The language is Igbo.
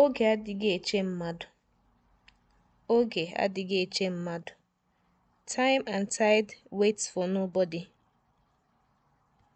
Oge adịghị eche mmadụ. Oge adịghị eche mmadụ. Time and tide waits for nobody.